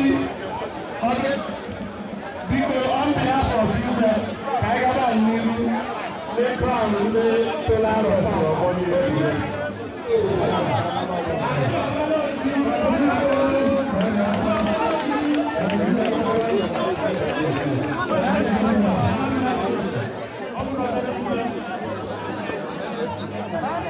Deputy Audit Biko on behalf of UBEC, Kaigaba N'iru, Lekwa Nde Tola Rọ̀bà ọ̀pọ̀ ní ẹgbẹ́. Thank you.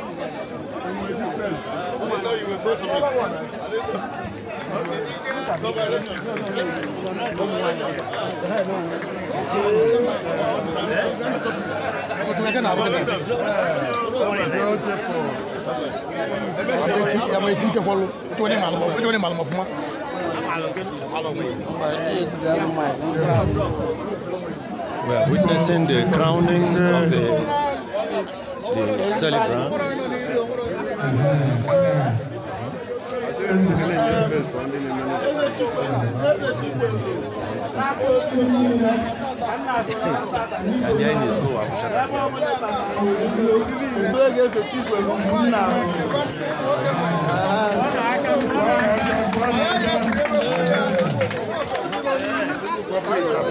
know you were first We are witnessing the crowning of the, the celebrant. And then is go Abuja.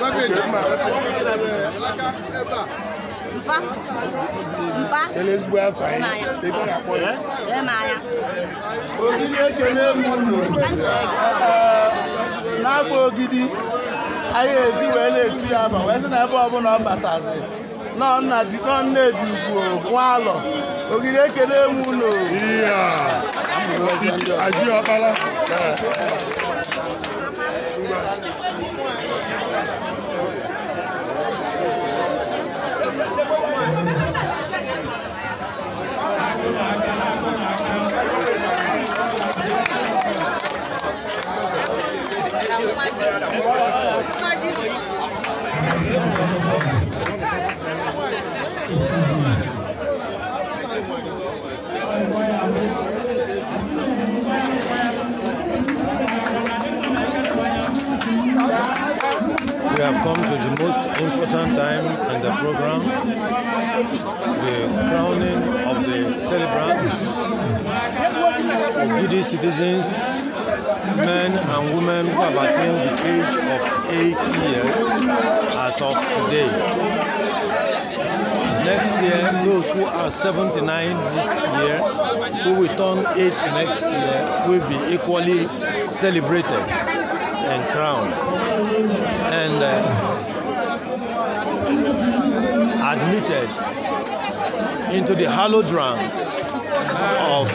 Wọ́n pè é ìjàmbá. Wọ́n pè é ìjàmbá. mpa mpa ezigbo afọ anyị ogidi ekele m Ee, n'afọ ogidi anyị eji wee na-eti ya ma wee sị na ebe ọbụla ọ batazi nọ nna dikọ nne dị ugwu nwa alọ ogidi ekele m unu the crowning of the celebrants, Ogidi citizens, men and women who have attained the age of 8 years as of today. Next year, those who are 79 this year, who will turn 8 next year, will be equally celebrated and crowned. And uh, admitted into the hallowed ranks of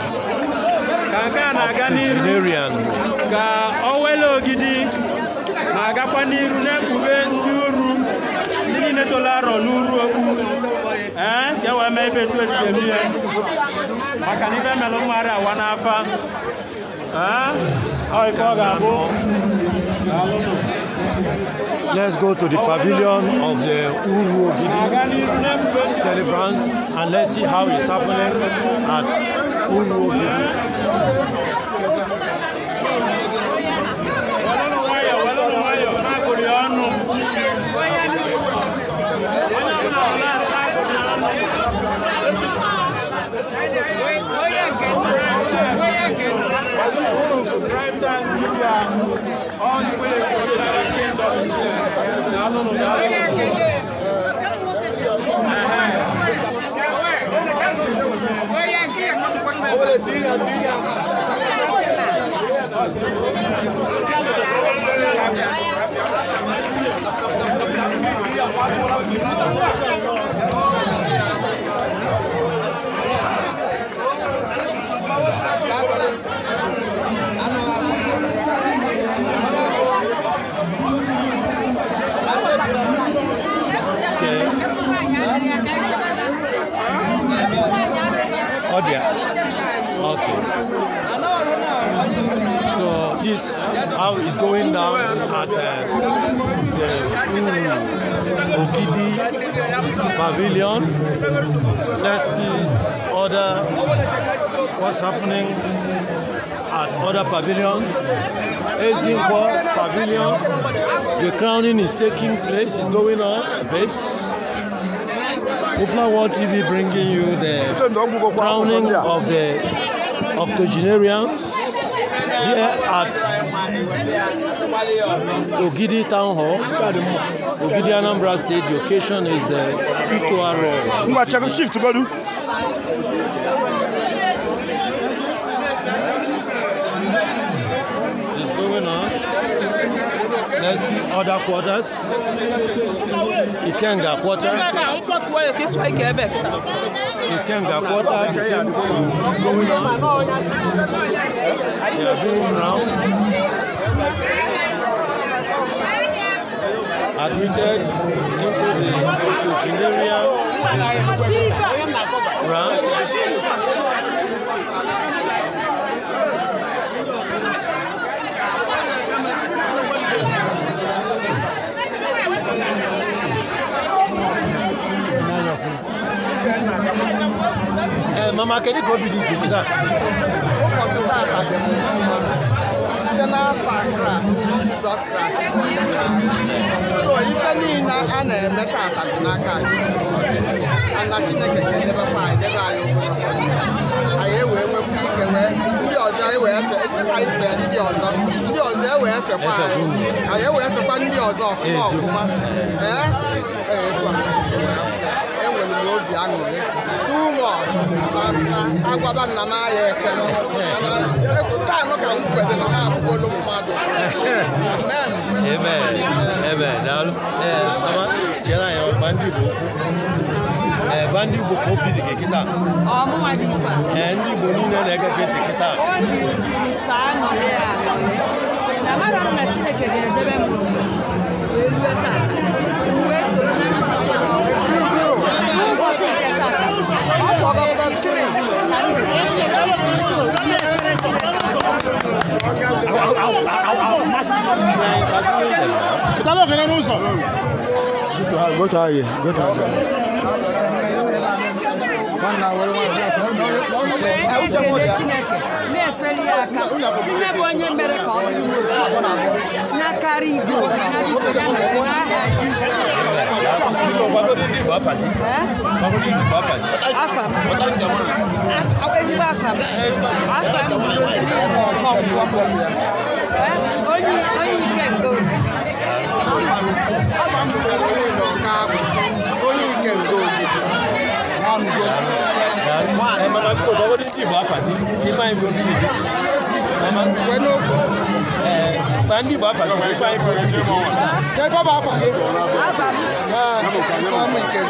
octogenarian. ka ọ ogidi na-agakwa n'iru na-ekpube ndị uru ndị niile tolarọ n'uru okwu ee ya wee mee ebe etu esi eme ihe maka na ibe melụ mmadụ awa n'afa ee ọ ga-abụ Let's go to the pavilion of the Uru celebrants and let's see how it's happening at Uru Ogidi. Drive times Thank you. now is going down at uh, hmm, Ogidi Pavilion. Let's see other what's happening at other pavilions. Ezingbo Pavilion. The crowning is taking place, is going on a base. Upla World TV bringing you the crowning of the octogenarians here at Ogidi Town Hall, Ogidi Anambra State. The occasion is the Ikuwa Roll. Ngwa chakun shift godu. It's Let's see other quarters. Ikenga quarter. Ikenga quarter. The same thing. Going on. They are doing round. admitted into the octogenarian ranks. Eh, Mama, can you go be the guitar? internal far crash Jesus Christ so ife niile a na-eme tata bụ n'aka ana Chineke ga-edebekwa anyị debe anyị anyị ewee nwekwa ike wee ndị ọzọ anyị wee efe dịka anyị fee ndị ọzọ ndị ọzọ ewee efekwa anyị anyị ewee efekwa ndị ọzọ ọfụma ọfụma ee eh? eh, enwere m obi aṅụrị lodge agwaba nna m ahịa eke taanụ ka m kwezi na m abụgolu mmadụ amen amen amen ndị Igbo ebe ndị Igbo ka obi dị gị kịta ee ndị Igbo niile na-ege gị ntị kịta na Chineke ga-edebe m Está lo que no uso. Go to her, go to her. One now, one now. na-efeli ya aka si n'ebe onye mere ka ọ dị mgbe n'akarị igbo na biko ya mere n'aha Jizọs afam akɔ ezigbo afam afam losili ɔkɔm kɔm onyi onyi kɛngo. afam losili ɔka onyi kɛngo ɔnugo. ẹ mama kó lọ́wọ́ ní ìdìbò àfàdé ní báyìí bó ti dìbò. pẹ̀lú òkú. ẹ máa ń dìbò àfàdé ní báyìí bó ti dìbò. kẹ́kọ̀ọ́ bá àfàdé. àfàdé. ẹ fọ́ọ̀mù ìkẹyìn.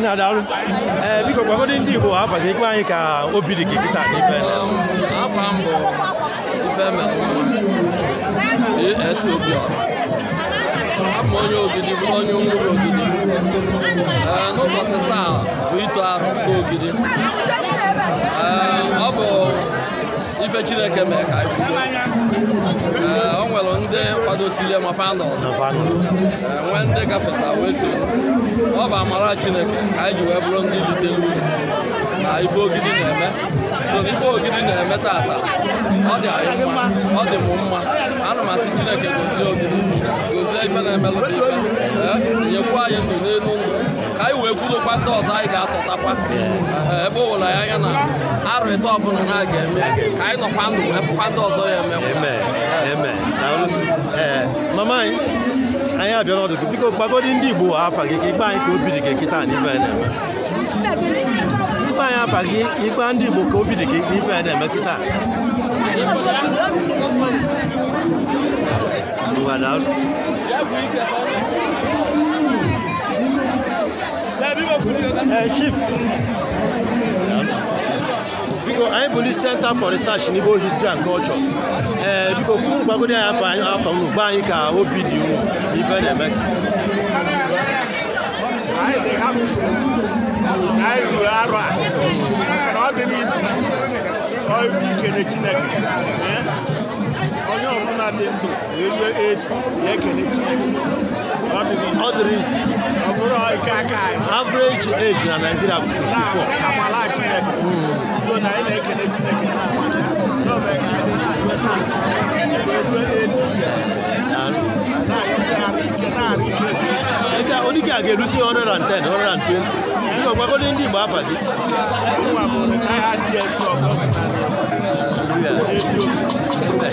na-adalụ ee eh, biko gwagodi ndị Igbo afa gị ikpe anyị ka obi dị gị kịta n'ime afa m bụ Ifemelụwa AS Obiora abụ onye Ogidi onye nwere Ogidi ee n'ụbọchị taa bụ ito arụ nke Ogidi ee ọ bụ ife chineke mee ka eh, o nwere ndị kwadosiri mafana ọzọ eh, nwee ndị gafeta wee so ọ bụ amara chineke ka anyị ji wee bụrụ ndị dutere uru na ife ogidi na-eme so ife ogidi na-eme tata ọ dị anyị mma ọ dị m mma ana m asị chineke gozie ogidi gozie ife na-emelụta ife eh, nyekwu anyị ndụ n'elu ka anyị wee ndị ọzọ anyị ga-atọtakwa ebe ya anya na arụ ịtọ ọbụla na a ga-eme ka anyị nọkwa ndụ ndị ọzọ ya eme e, anyị anyị abịa n'ọdụdụ biko gbagodi ndị Igbo afa gị ka anyị ka obi dị gị kịta n'ife na-eme anyị afa gị ndị Igbo ka obi dị gị n'ife na-eme kịta Eh, chief biko anyị bụ ndị for research in Igbo and culture ee eh, biko kwuru gbagodo anyị afọ anyị gba anyị ka obi dị unu n'ife na-eme anyị arụ a ọ dị ike na Chineke eh, ọbụla na etu ya ekele Chineke all average age na nigeria bụ 54 onike a ga-erusi 110 120 ndị ọgbagodi ndị igbo afa gị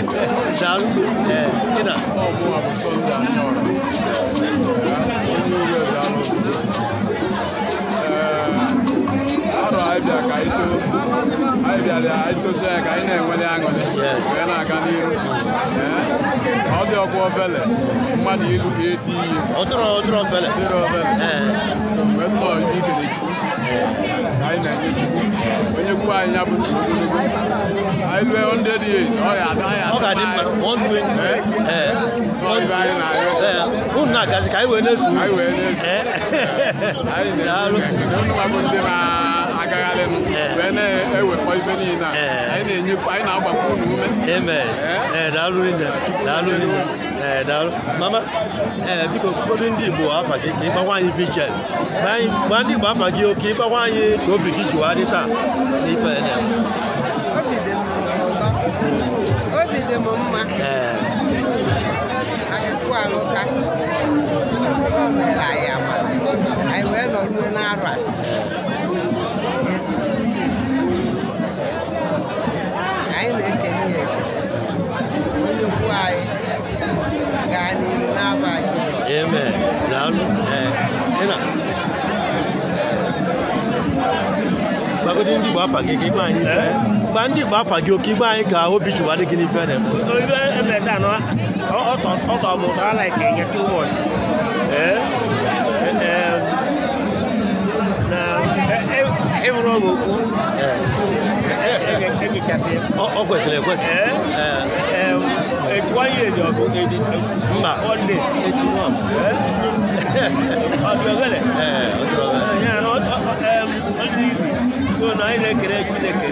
Ọ bụ ịna ọrụ anyị bịa ka anyị too bịara anyị tozi ya ka anyị na-enwere aṅụrị wee na-aga n'iru ọ dị ọkwa ovele mmadụ ilu ga-eti iyi eh. ọdịrọ ovele wee anyị na-enye chukwu onye kwuo anyị ya bụ nsogbu anyị lue 100 years ọ ada ya ibe anyị na-arịọ unu na-agazi ka anyị wee na-ezu anyị wee na-ezu anyị na-ezu unu ma bụ ndị eh? eh. oh, eh. na na eh. wee na-ewekọ ife niile a eh. anyị na-enyekwa anyị na-agbakwa unu ume eh. mama ee biko ụfọdụ ndị Igbo afa gị ka ịgbawa anyị vichel gba ndị Igbo afa gị oke ịgbawa anyị ka obi gị jiwadị taa n'ife dị m mma alụka gbàgede ń dìgbò àfàgè kí gbà yín fẹ́ gbà ń dìgbò àfàgè kí gbà yín kà ó bí ṣùgbọ́n adé kìíní fẹ́ rẹ̀. olùdó ẹ̀mẹ̀ tà nù ọ̀tọ̀ ọ̀tọ̀ ọ̀bù sàlà ìkẹyẹ tó wọ̀ ẹ̀ ẹ̀ ẹ̀wúrọ̀ wò kú ẹ̀kẹ̀ kẹsẹ̀. ọgbẹ̀sẹ̀lẹ̀ ọgbẹ̀sẹ̀. eighty one years ago eighty mba one day eighty one. ọ̀dùnkẹ́lẹ̀. ọ̀dùnkẹ́lẹ̀. anyị na-ekere Chineke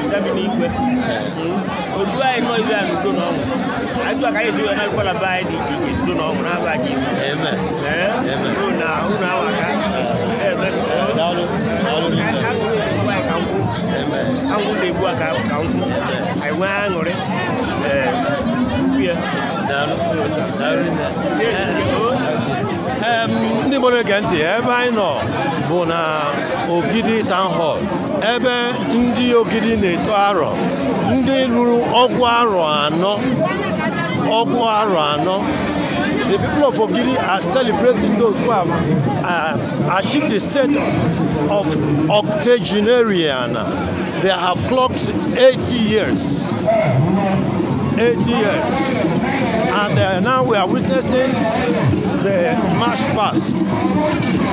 isemina ikpe odu anyị nọ ibe anyị udo na ọṅụ ajụ ka anyị eziwe na nkwala be anyị dị iche iche udo na ọṅụ na gị na ụnụ awa ka anwụ na-egbu aka ka nkwụ anyị nwee aṅụrị ee ya ndị gbara ege ntị ebe anyị nọ bụ na Ogidi Town Hall ebe ndị Ogidi na-eto arọ ndị ruru ọgwụ arọ anọ ọgwụ arọ anọ the people of Ogidi are celebrating those who have uh, achieved the status of octogenarian. They have clocked 80 years. 80 years. And uh, now we are witnessing the march past,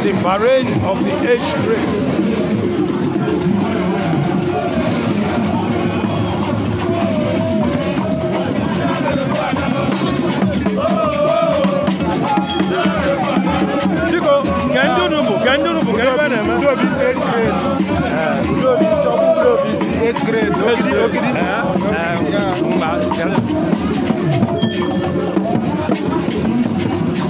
the parade of the H train. Chico, can do nubu, can do nubu, can do nubu. Do a bit eighth Do a bit some, do a bit eighth grade. Okay, okay, okay. Yeah.